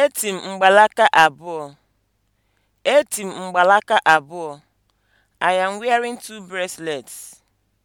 Eti m mgbalaka abụọ. Eti m mgbalaka abụọ. I am wearing two bracelets.